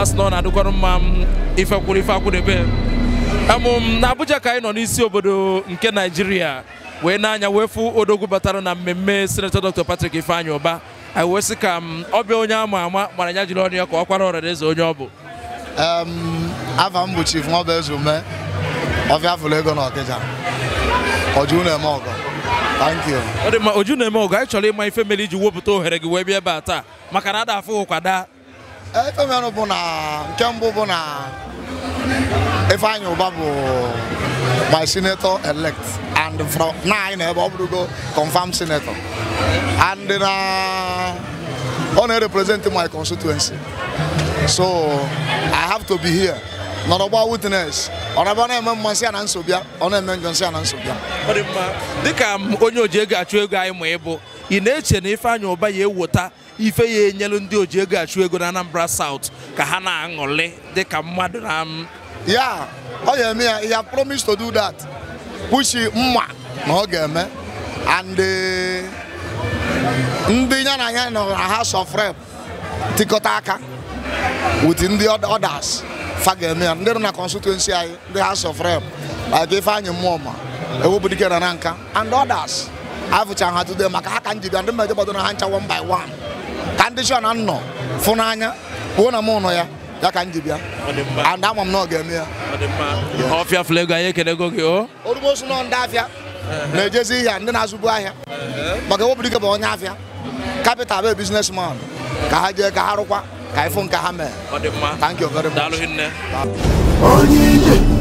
asị na ọ na-adịkwarụ mma m ife kwuru ife akwụdebe amụm na Abuja ka anyị nọ n'isi obodo nke Naijiria wee na-anya wee fụ odogwu batara na mmemme senetọ Dr. Patrik Ifeanyi ụba. anyị wee sị ka m ọbịa onye ama ama mara ya jiri ọnụ ya ka ọ kwara ọrịa eze onye ọ bụ afa m bụ chief nwabezume ọbịa fụlụ ego na Ọkịja ọjụ na-eme ọgụ. Thank you. Ọ dị mma oju na-eme ọgụ anyị chọrọ ịma ife mere iji wepụta ohere gị wee bịa ebe a taa maka na ada afụ ụkwa daa. Eh, ife mere bụ na nke mbụ bụ na Ifeanyi Uba bụ my senator elect and from na anyị na ebe ọ bụrụgo confirmed senator and na ọ na-represent my constituency so I have to be here. nọrọgba witness ọ na-eme mmasị a na nsobịa ọ na-eme njọnsị a na nsobịa ọ dị mma dịka onye oji ego achụ ego anyị ma bụ, ị na-eche na Ifeanyi ụba ya ewota ife ya enyelu ndị oji ego achụ ego na Anambra South ka ha na-aṅụrị dịka mmadụ na ya ọ eme ya ya promised to do that mma na ọ and ndị ya House of Rep with others fa ga ndị nọ na constituency anyị ndị House of Rep like Ifeanyị Mmụọma Ewubudike na Nanka and others afụcha ha today maka aka njide ndị mmejọ gbadoro ha ncha one by one condition ndị shọ na nnọ fụ n'anya na mụ nọ ya ya ka njibia and ama m na ọ ga-eme ya ọfịa flego anyị ekelego gị o orugbosu ndị afịa na-ejezi ihe ndị na-azụbu ahịa maka Ewubudike bụ onye afịa capital bụ businessman ka ha jee ka ha rụkwa ka anyị fụ nke ha thank you very much